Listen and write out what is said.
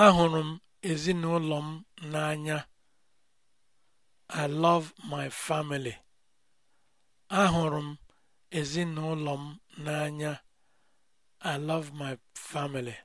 Ahụrụ m ezinụlọ m n'anya. I love my family. I love my family.